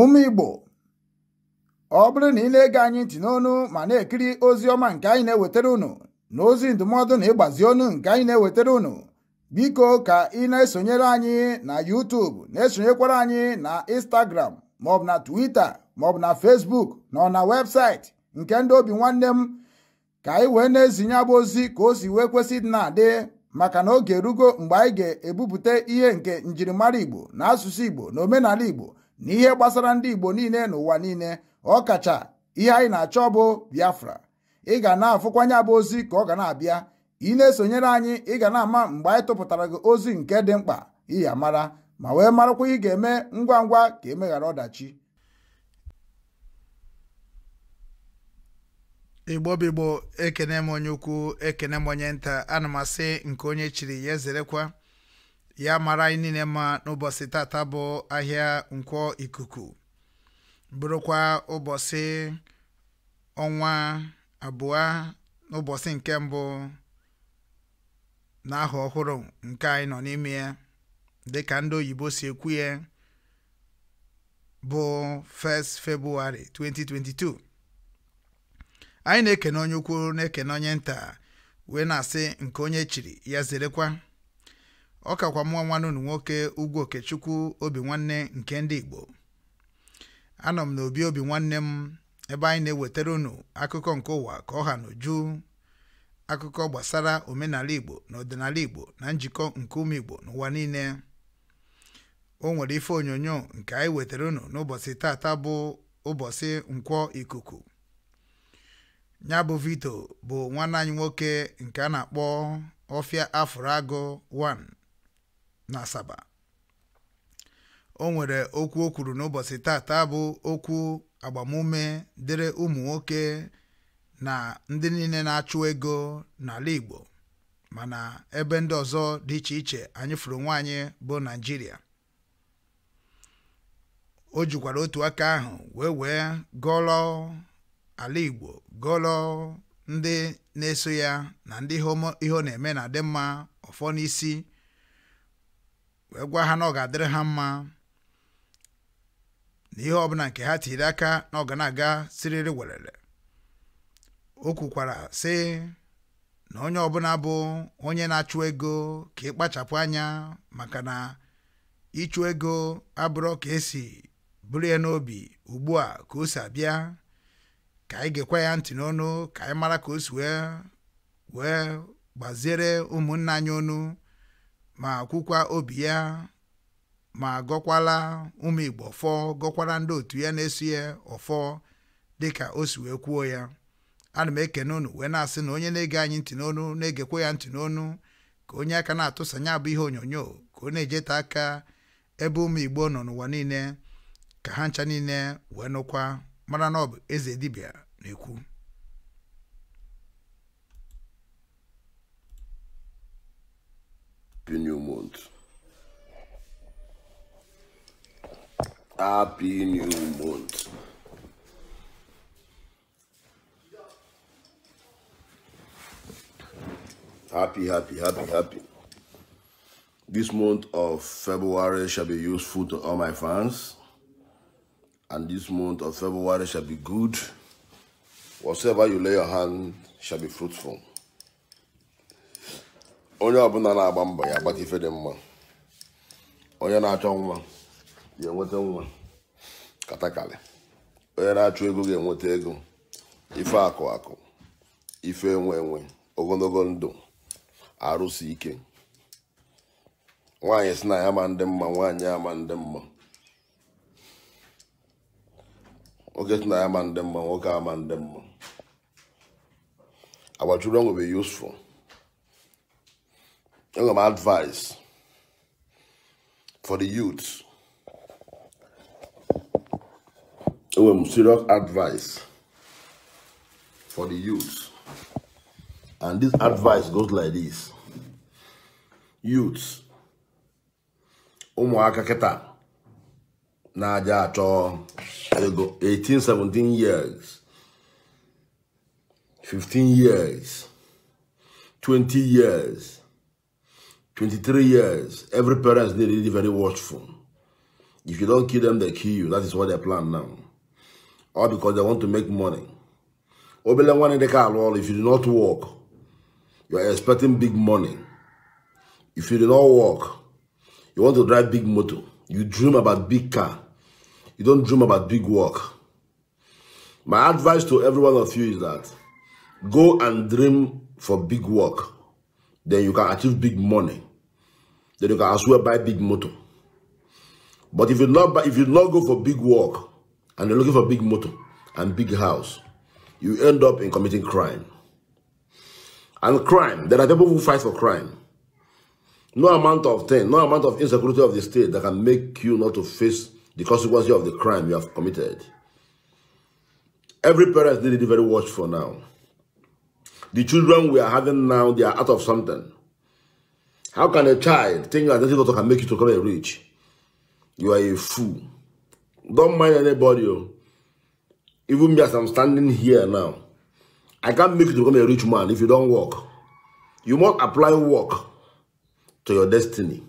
ụmụ igbo ọ bụrụ na ị na-ege anyị ntị n'onu ma na-ekiri ozi ọma nke anyị na-ewetara unu na ozi ndụmọdụ na ịgbazi ọnụ nke anyị na-ewetara unu biko ka ị na-esonyere anyị na YouTube na-esonyekwara anyị na Instagram maọbụ na Twitter maọbụ na Facebook ọ na webụsaịtị nke ndị obi nwanne m ka anyị wee na-ezinye abụ ozi ka o si wee kwesị na-adị maka na oge erugo mgbe anyị ga-ebupụta ihe nke njirimara Igbo na asụsụ Igbo na omenala Igbo n'ihe gbasara ndị Igbo niile n'ụwa niile ọ kacha ihe anyị na-achọ bụ Biafra ị ga na-afụkwanye bụ ozi ka ọ ga na-abịa ị na-esonyere anyị ị ga na-ama mgbe anyị tụpụtara gị ozi nke dị mkpa ịya mara ma wee marakwa ị ga-eme ngwa ngwa ka emeghara ọdachi igbobigbo ekene m onye ukwu ekene m onye nta na m asị nke onye chiri ya ezerekwa ya mara anyị niile mma n'ụbọchị tata bụ ahịa nkwọ ikuku bụrụkwa ụbọchị ọnwa abụọ n'ụbọchị nke mbụ na ọhụrụ nke anyị nọ n'ime ya dịka ndị oyibo si ekwu ya bụ 1st 2022 anyị na-ekene onye ukwu na-ekene onye nta wee na-asị nke onye chiri ya zerekwa ọ kakwa mụọ nwanne unu nwoke Ugwu Okechukwu obi nwanne nke ndị Igbo anọ m n'obi obi nwanne m ebe anyị na-ewetara unu akụkọ nke ụwa ka ọ ha n'uju akụkọ gbasara omenala Igbo na ọdịnala Igbo na njikọ nke ụmụ Igbo n'ụwa niile o nwere ife onyonyo nke anyị wetara unu n'ụbọchị tata bụ ụbọchị nkwọ ikuku ya bụ Vito bụ nwanne anyị nwoke nke a na-akpọ ọfịa afụrụ agụ 1 na asaba o nwere okwu o kwuru n'ụbọchị tata bụ okwu agbamume dịrị ụmụ nwoke na ndị niile na-achụ ego n'ala Igbo mana ebe ndị ọzọ dị iche iche anyị fụrụ nwaanyị bụ Naịjirịa o jikwara otu aka ahụ wee wee gọlọ ala Igbo gọlọ ndị na-eso ya na ndị ihe ọ na-eme na adị mma ọfọ n'isi wee gwa ha na ọ ga-adịrị ha mma na ihe ọbụla nke ha tiri aka na ọ ga na-aga siriri werere o kwukwara sị na onye ọbụla bụ onye na-achụ ego ka ịkpachapụ anya maka na ịchụ ego abụrụ ka esi buru ya n'obi ugbu a ka o si abịa ka anyị gekwa ya ntị n'ọnụ ka anyị mara ka o si wee wee gbaziere ụmụnna anyị ọnụ ma kwukwa obi ya ma gọkwala ụmụ Igbo ọfọ gọkwara ndị otu ya na-eso ya ọfọ dịka o si wee kwuo ya ana m ekene unu wee na-asị na onye na-ege anyị ntị n'onu na-egekwa ya ntị n'onu ka onye aka na atụsanya abụ ihe onyonyo ka ọ na-ejeta aka ebe ụmụ Igbo nọ n'ụwa niile ka ha ncha niile wee nụkwa mara na ọ bụ eze dibịa na-ekwu Happy new month. Happy new month. Happy, happy, happy, happy. This month of February shall be useful to all my fans. And this month of February shall be good. Whatever you lay your hand shall be fruitful. onye ọbụla na-agba mbọ ya agbata ife dị mma onye na-achọ nwa ga-enweta nwa katakali onye na-achọ ego ga-enweta ego ife akụ akụ ife enwe enwe ogologo ndụ arụsị ike nwaanyị si na ya ma ndị mma nwaanyị ama ndị mma nwoke si na ya ma ndị mma nwoke ama ndị mma agbachuru ọnwụ useful Look at my advice for the youth. Look at serious advice for the youth. And this advice goes like this. youths, Umuaka keta. Naja ato. 18, 17 years. 15 years. 20 years. 23 years, every parent is really very watchful. If you don't kill them, they kill you. That is what they plan now. All because they want to make money. Obele one in the car, well, if you do not work, you are expecting big money. If you do not work, you want to drive big motor. You dream about big car. You don't dream about big work. My advice to every one of you is that go and dream for big work then you can achieve big money. Then you can as well buy big motor. But if you not buy, if you not go for big work and you're looking for big motor and big house, you end up in committing crime. And crime, there are people who fight for crime. No amount of thing, no amount of insecurity of the state that can make you not to face the consequences of the crime you have committed. Every parent needs to be very watchful now. The children we are having now, they are out of something. How can a child think that this daughter can make you to become rich? You are a fool. Don't mind anybody. Oh. Even me as I'm standing here now, I can't make you to become a rich man if you don't work. You must apply work to your destiny.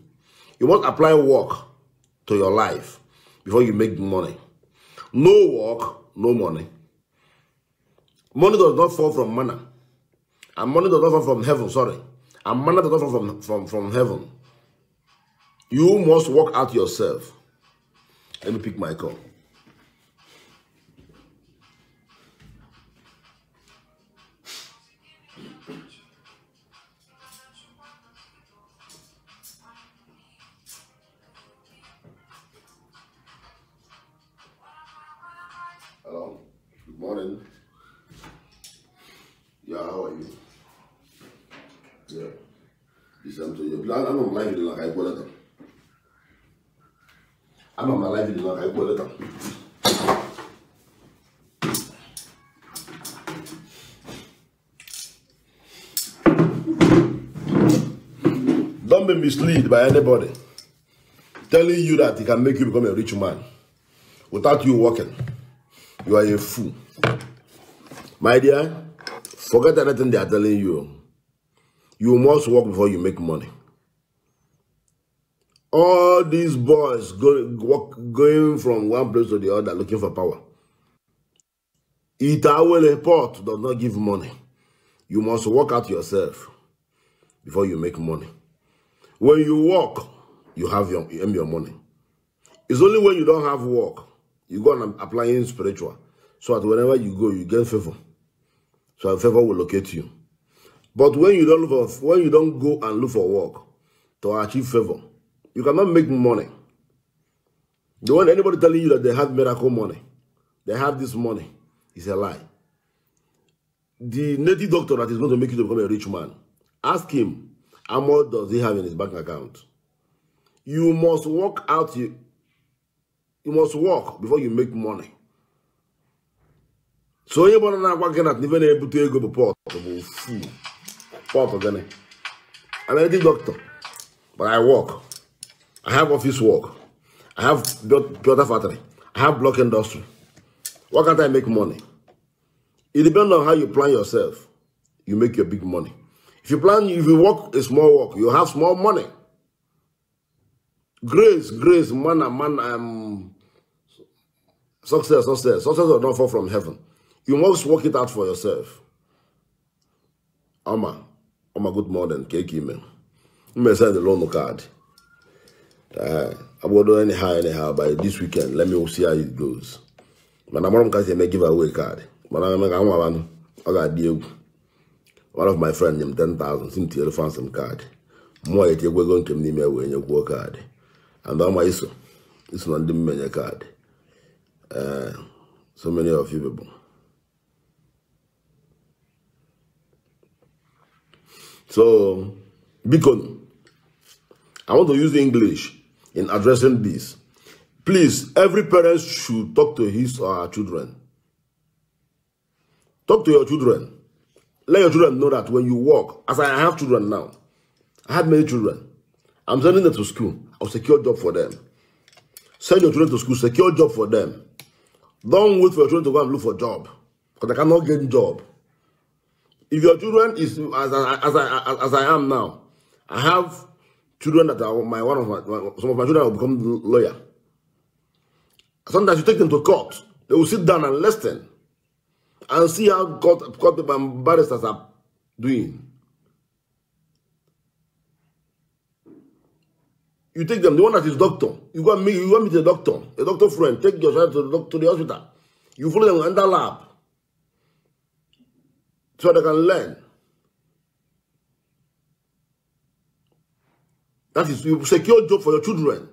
You must apply work to your life before you make money. No work, no money. Money does not fall from manna. And money does not fall from heaven, sorry. And money does not fall from, from, from heaven. You must work out yourself. Let me pick my call. misled by anybody telling you that it can make you become a rich man without you working. You are a fool. My dear, forget anything they are telling you. You must work before you make money. All these boys go, walk, going from one place to the other looking for power. Itawele Port does not give money. You must work out yourself before you make money. When you work, you have your, you earn your money. It's only when you don't have work, you go and apply in spiritual. So that whenever you go, you get favor. So favor will locate you. But when you don't look for, when you don't go and look for work to achieve favor, you cannot make money. The one anybody telling you that they have miracle money, they have this money, is a lie. The native doctor that is going to make you to become a rich man, ask him How much does he have in his bank account? You must work out, you, you must work before you make money. So onye bụrụ na agwa gị na ife na to ego bụ pọt bụ fu pọt a doctor but I work I have office work I have builder factory I have block industry why can't I make money? It depends on how you plan yourself you make your big money. If you plan, if you work a small work, you have small money. Grace, grace, man, man, um, success, success. Success will not fall from heaven. You must work it out for yourself. Ama, ama good morning, keki me. Me send the loan card. Uh, I will do anyhow, anyhow, by this weekend, let me see how it goes. Mana mọrọ m ka si eme giveaway card. But I'm going to banụ, ọ ga-adị egwu. one of my friends, nyem 10,000 si m tinyere fansị m kaadị mmụọ ya tinyekwa ego nke m n'ime wee nyekwuo card. and ọma It's not na ndị mmenye card. Uh, so many of you people so because i want to use english in addressing this please every parent should talk to his or her children talk to your children Let your children know that when you walk, as I have children now, I have many children. I'm sending them to school. I'll secure a job for them. Send your children to school, secure a job for them. Don't wait for your children to go and look for a job. Because I cannot get a job. If your children is as I, as I, as I am now, I have children that are my one of my some of my children will become lawyer. Sometimes you take them to court, they will sit down and listen. and see how court, court people and barristers are doing. You take them, the one that is doctor, you go meet, you go meet a doctor, a doctor friend, take your child to the, to the hospital. You follow them under lab so they can learn. That is, you secure job for your children.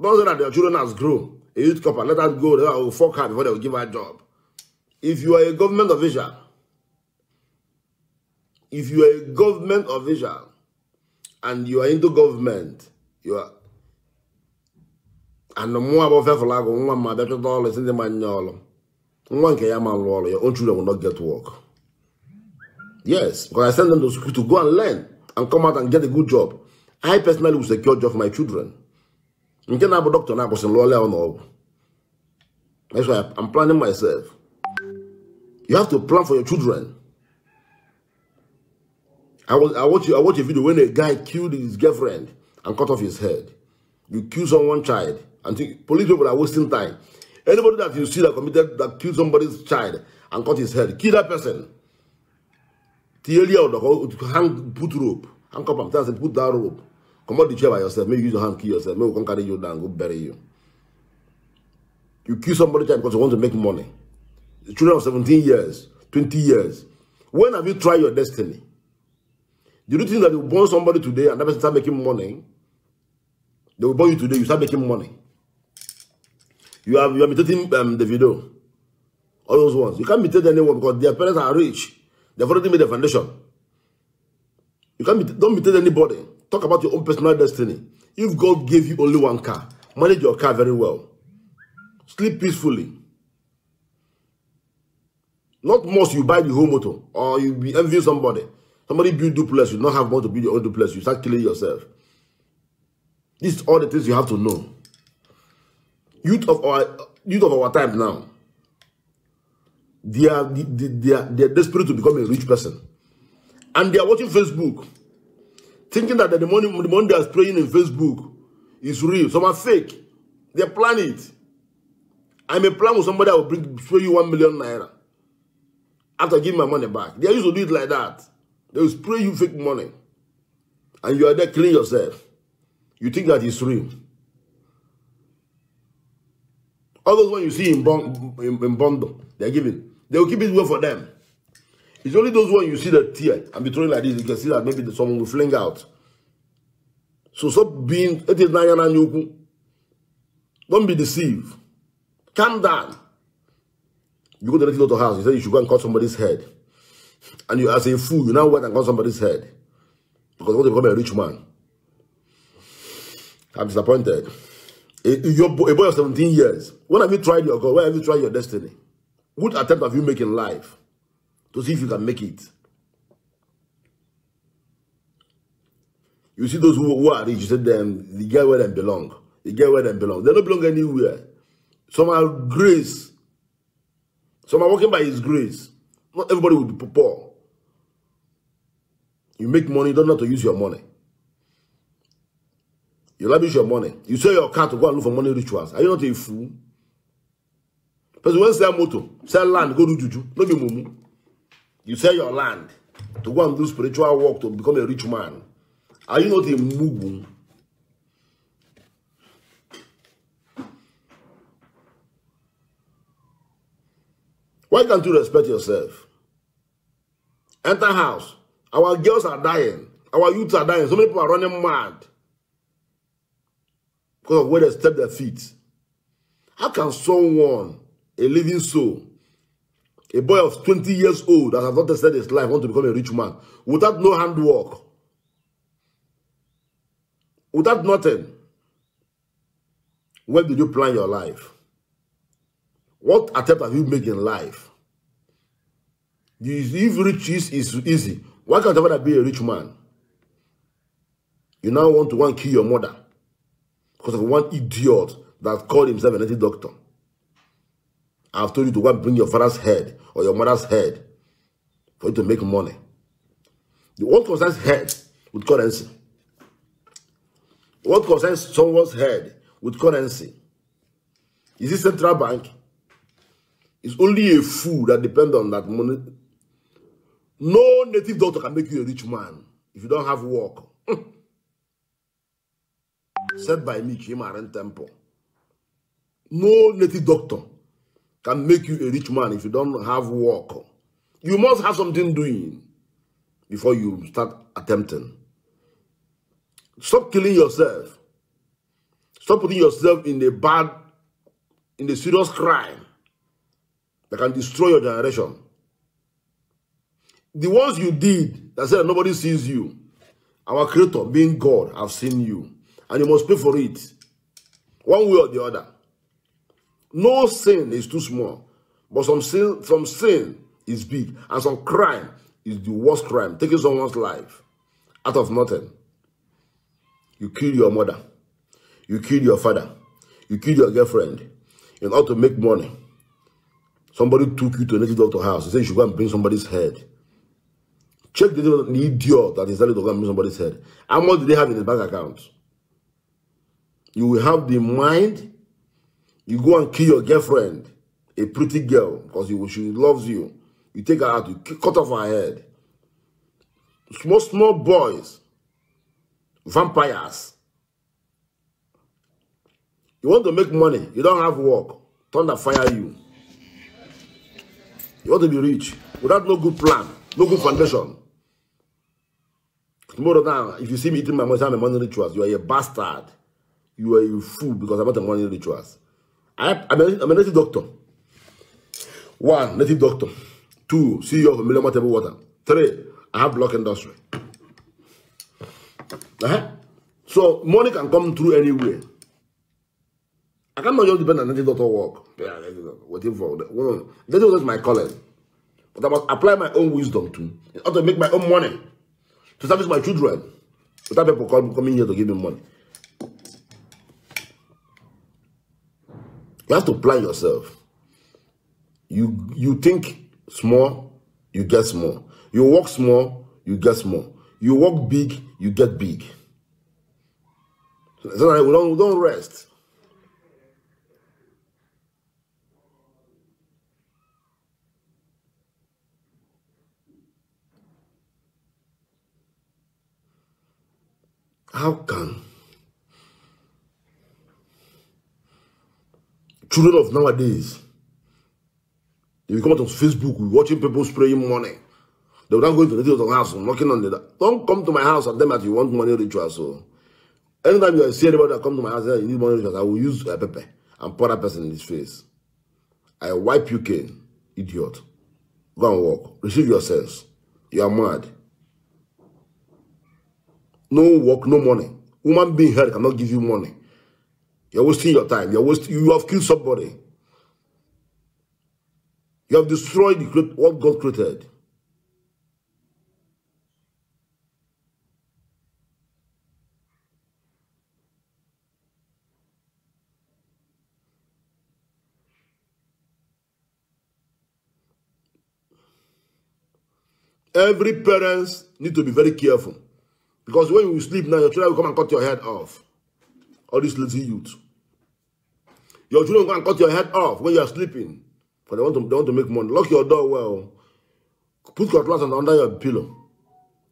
Don't say that their children has grown a youth copper, let us go, I will fuck her before they will give her a job. If you are a government of Israel, if you are a government of Israel and you are into government, you are and the more about faithful I go, one my better all is in the man all. One can yam and roll, your own children will not get work. Yes, because I send them to school to go and learn and come out and get a good job. I personally will secure job for my children. nke na-abụ dọkịta na-akwụsịrị lụọla ya n'ọgwụ i'm planning myself you have to plan for your children i was i watch i watch a video when a guy killed his girlfriend and cut off his head you kill someone child and think, police people are wasting time anybody that you see that committed that killed somebody's child and cut his head kill that person Tie hang put rope handcuff him put that rope comot the chair by yourself Maybe use your hand kill yourself Maybe we can carry you down go bury you you kill somebody because you want to make money The children of 17 years 20 years when have you tried your destiny do you think that you born somebody today and that person start making money they will born you today you start making money you have you are imitating um, the video all those ones you can't imitate anyone because their parents are rich they've already made the foundation you can't imitate, don't imitate anybody Talk about your own personal destiny. If God gave you only one car, manage your car very well. Sleep peacefully. Not most you buy the whole motor or you be envy somebody. Somebody build duplex, you not have money to build your own duplex, you start killing yourself. This is all the things you have to know. Youth of our youth of our time now. They are they, they are they are desperate to become a rich person. And they are watching Facebook thinking that the money, the money they are spraying in Facebook is real. Some are fake. They plan it. I may plan with somebody I will bring, spray you one million naira after giving my money back. They used to do it like that. They will spray you fake money. And you are there killing yourself. You think that it's real. All those when you see in, bond, in, in bundle, they're giving. They will keep it well for them. It's only those when you see the tear and be throwing like this, you can see that maybe someone will fling out. So stop being it is Nayana Nyuku. Don't be deceived. Calm down. You go directly to the house, you say you should go and cut somebody's head. And you as a fool, you now went and cut somebody's head. Because you want to become a rich man. I'm disappointed. A, a boy of 17 years, when have you tried your God? Where have you tried your destiny? What attempt have you made in life? to see if you can make it. You see those who, who are rich, you said them, the get where they belong. They get where they belong. They don't belong anywhere. Some are grace. Some are working by his grace. Not everybody will be poor. You make money, don't know to use your money. You lavish your money. You sell your car to go and look for money rituals. Are you not a fool? Person when sell motor, sell land, go do juju. No be mumu. You sell your land to go and do spiritual work to become a rich man. Are you not a mugu? Why can't you respect yourself? Enter house. Our girls are dying. Our youths are dying. So many people are running mad. Because of where they step their feet. How can someone, a living soul, a boy of 20 years old that has not tested his life want to become a rich man without no handwork, without nothing. When did you plan your life? What attempt have you made in life? If riches is easy, why can't ever be a rich man? You now want to want to kill your mother because of one idiot that called himself an anti-doctor. I've told you to go and bring your father's head or your mother's head for you to make money. The what concerns head with currency. What concerns someone's head with currency? Is this central bank? It's only a fool that depends on that money. No native doctor can make you a rich man if you don't have work. Said by me, Kim Aren Temple. No native doctor can make you a rich man if you don't have work. You must have something doing before you start attempting. Stop killing yourself. Stop putting yourself in a bad, in a serious crime that can destroy your generation. The ones you did that said nobody sees you, our creator being God, have seen you. And you must pay for it. One way or the other. No sin is too small, but some sin, some sin is big, and some crime is the worst crime, taking someone's life out of nothing. You kill your mother, you kill your father, you kill your girlfriend in order to make money. Somebody took you to a native doctor house He said you should go and bring somebody's head. Check the, idiot that is telling to go and bring somebody's head. How much do they have in the bank account? You will have the mind You go and kill your girlfriend, a pretty girl, because she loves you. You take her out, you cut off her head. Small, small boys, vampires. You want to make money, you don't have work. Thunder fire you. You want to be rich without no good plan, no good foundation. Tomorrow now, if you see me eating my money, I'm a money rituals, you are a bastard. You are a fool because I'm not a money rituals. I, I'm, a, I'm a native doctor. One, native doctor. Two, CEO of Millennium Table Water. Three, I have block industry. Uh -huh. So money can come through anywhere. I cannot just depend on native doctor work. Yeah, waiting for that. Well, that was my calling. But I must apply my own wisdom to in order to make my own money to service my children. Without people coming here to give me money. You have to plan yourself. You you think small, you get small. You work small, you get small. You work big, you get big. So, I don't, don't rest. How come? children of nowadays, they come out on Facebook watching people spraying money. They will not go to the house and knocking on the Don't come to my house and them as that you want money rituals. So oh. anytime you see anybody that come to my house and you need money rituals, I will use a uh, pepper and pour that person in his face. I wipe you cane, idiot. Go and walk. Receive yourselves. You are mad. No work, no money. Woman being heard cannot give you money. You're wasting your time. You're wasting, you have killed somebody. You have destroyed what God created. Every parents need to be very careful. Because when you sleep now, your children will come and cut your head off. all these lazy youth. Your children can cut your head off when you are sleeping. Because they want to, they want to make money. Lock your door well. Put your glass under your pillow.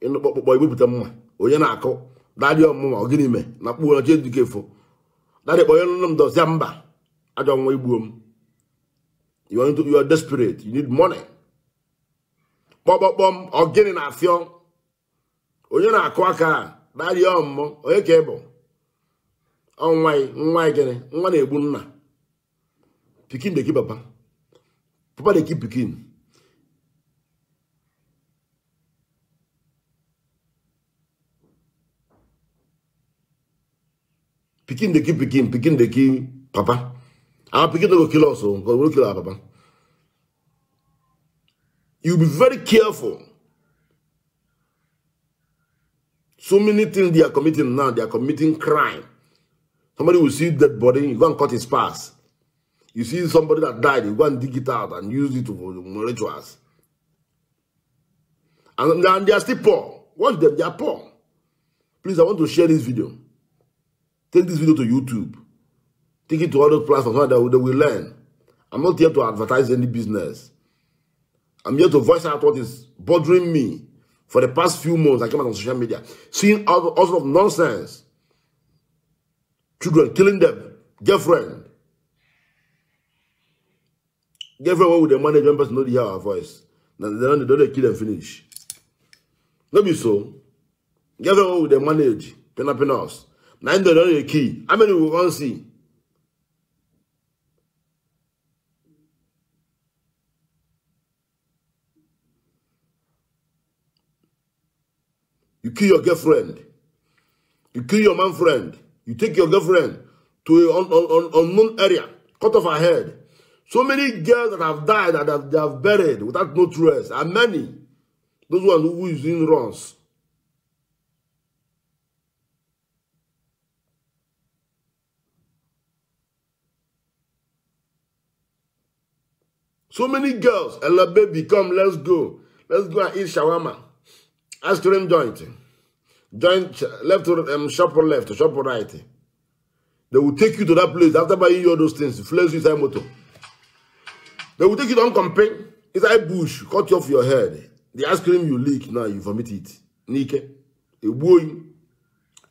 In the boy, we put them on. Onye na-akụ dadị ọmụma ọ gịnị me na kpuo na chie dike fo dadị kpọnye nụnụ m dọzie mba ajọ nwa igbuo m you want to you are desperate you need money kpọkpọkpọm ọ gịnị na afịọ onye na-akụ aka dadị ọmụmụ onye ka ị bụ nwa nwa gịnị nwa na-egbu nna pikin dey kill papa papa dey kill pikin pikin dey kill pikin pikin dey kill papa our pikin no go kill us o because we kill our papa you be very careful so many things they are committing now they are committing crime Somebody will see dead body, you go and cut his pass. You see somebody that died, you go and dig it out and use it for rituals. And, and they are still poor. Watch them, they are poor. Please, I want to share this video. Take this video to YouTube. Take it to other platforms so that they will learn. I'm not here to advertise any business. I'm here to voice out what is bothering me. For the past few months, I came out on social media, seeing all, all sorts of nonsense. children, killing them, girlfriend. Girlfriend, what would the management person know they hear our voice? Then they don't, kill and finish. Maybe so. Girlfriend, what would they manage? in penas. Now they don't the key. How many we can see? You kill your girlfriend. You kill your man friend. You take your girlfriend to an unknown area, cut off her head. So many girls that have died, that have, they have buried without no trace, and many. Those ones who is in runs. So many girls, Ella baby, come, let's go. Let's go and eat shawarma. Ice cream joint joint left um, shop or left, shop or right. They will take you to that place after buying you all those things, flares you inside motor. They will take you down campaign, inside bush, cut you off your head. The ice cream you leak, now you vomit it. Nike, a boy.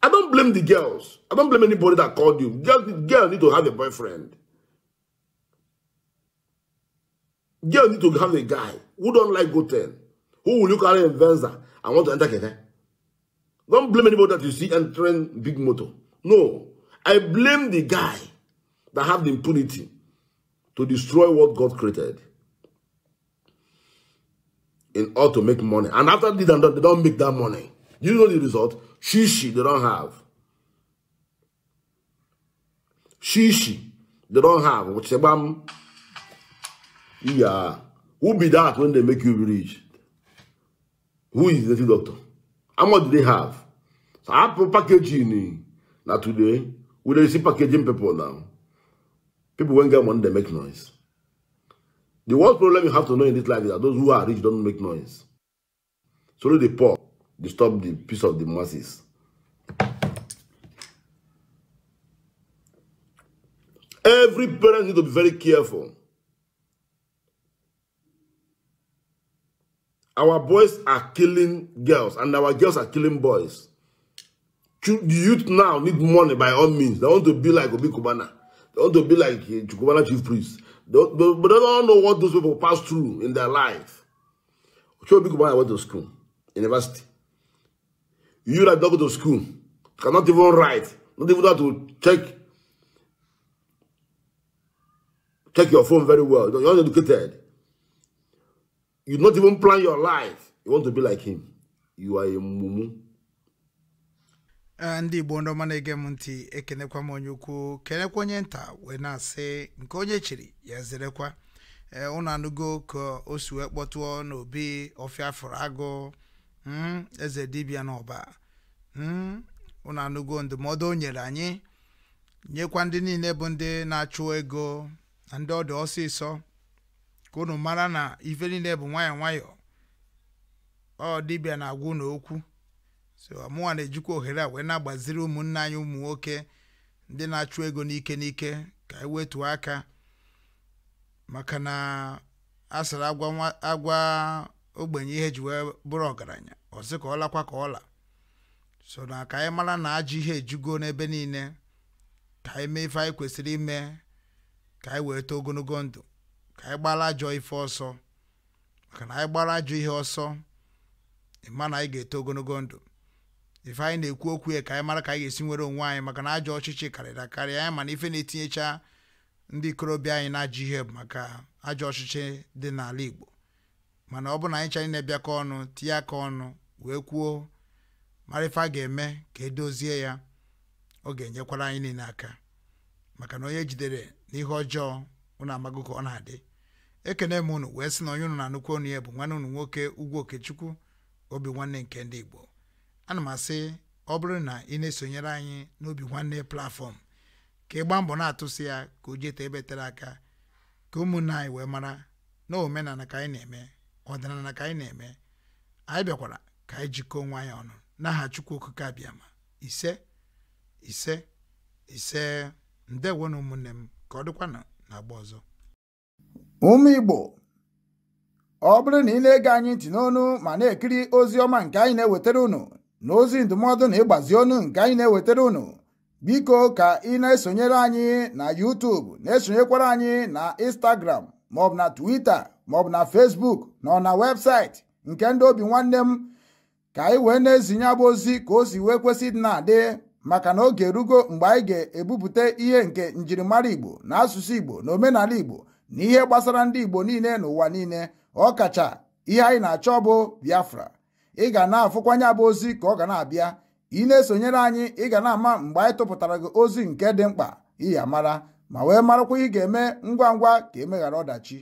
I don't blame the girls. I don't blame anybody that called you. Girls, girls need to have a boyfriend. Girls need to have a guy who don't like go 10. Who will you carry in Venza and want to enter Keke? Don't blame anybody that you see entering big motor. No. I blame the guy that have the impunity to destroy what God created in order to make money. And after this and that, they don't make that money. You know the result? Shishi, they don't have. Shishi, they don't have. your Sebam, yeah. Who be that when they make you rich? Who is the doctor? How much do they have? So Apple packaging. Eh? Now today, we don't see packaging people now. People won't get money, they make noise. The worst problem you have to know in this life is that those who are rich don't make noise. So the poor disturb the peace of the masses. Every parent needs to be very careful. Our boys are killing girls and our girls are killing boys. The youth now need money by all means. They want to be like Obi Kubana. They want to be like eh, Kubana chief priest. They, they, but they don't know what those people pass through in their life. Obi Kubana went to school, university. You that don't go to school, cannot even write, not even how to check check your phone very well. You're not educated. you not even plan your life you want to be like him you are a mumu ndị igbo eh, ndị ọma na-ege m ntị ekenekwa m onye ukwu kenekwa onye nta wee na-asị nke onye chiri ya zerekwa ụnụ eh, anụgo ka o si wee kpọtụọ n'obi ọfịa fụrụ agụ hmm, eze dibịa n'ọba ụnụ hmm, anụgo ndụmọdụ o nyere anyị nyekwa ndị niile bụ ndị na-achụ ego na ndị ọdụ ọsịsọ ka unu mara na ife niile bụ nwayọ nwayọ ọ dịbịa na-agwa unu okwu so mụnwa na-ejikwa ohere a wee na-agbaziri ụmụnne anyị ụmụ nwoke ndị na-achụ ego n'ike n'ike ka e wetuo aka maka na a sara agwa ogbenye ihe ji wee bụrụ ọgaranya ọ sị ka ọ lakwa ka ọla so na ka anyị mara na ajọ ihe ejugo n'ebe niile ka anyị mee ife anyị kwesịrị ime ka anyị wee too ogologo ndụ anyị gbara ajọ ife ọsọ maka na anyị gbara ajọ ihe ọsọ ịma na anyị ga-eto ogologo ndụ ife anyị na-ekwu okwu ya ka anyị mara ka anyị ga-esi nwere onwe anyị maka na ajọ ọchịchị karịrị karịa anyị mana ife na-etinyecha ndị ikorobịa anyị na-ajọ ihe bụ maka ajọ ọchịchị dị n'ala Igbo mana ọ bụ na anyị chanyị na-ebịakọ ọnụ tinye aka ọnụ wee kwuo mara ife a ga-eme ka edozie ya ọ ga-enyekwara anyị niile aka maka na onye jidere n'ihe ọjọọ ụnụ amagụ ka ọ na-adị ekene m unu wee sị na onye unu na-anụkwu onu ya bụ nwanne unu nwoke Ugwu Okechukwu obi nwanne nke ndị Igbo ana m asị ọ bụrụ na ị na-esonyere anyị n'obi nwanne platfọm ka ị gbaa mbọ na-atụsị ya ka o jeta ebe tere aka ka ụmụnne anyị wee mara na omenala ka anyị na-eme ọdịnala ka anyị na-eme anyị bịakwara ka anyị jikọọ onwe anyị ọnụ n'aha Chukwu Okike abịama ise ise ise na ụmụnne m ka ọ dịkwana na agba ọzọ ụmụ igbo ọ bụrụ na ị na-ege anyị ntị n'onu ma na-ekiri ozi ọma nke anyị na-ewetara unu na ozi ndụmọdụ na ịgbazi ọnụ nke anyị na-ewetara unu biko ka ị na-esonyere anyị na YouTube na-esonyekwara anyị na Instagram maọbụ na Twitter maọbụ na Facebook ọ na webụsaịtị nke ndị obi nwanne m ka anyị wee na-ezinye bụ ozi ka o si wee kwesị dị na-adị maka na oge erugo mgbe anyị ga-ebupụta ihe nke njirimara Igbo na asụsụ Igbo na omenala Igbo n'ihe gbasara ndị Igbo niile n'ụwa niile ọ kacha ihe anyị na-achọ ọ bụ Biafra ị ga na-afụkwanye abụ ozi ka ọ ga na-abịa ị na-esonyere anyị ị ga na-ama mgbe anyị tụpụtara gị ozi nke dị mkpa ya mara, ma wee marakwa ihe ị ga-eme ngwa ngwa ka emeghara ọdachi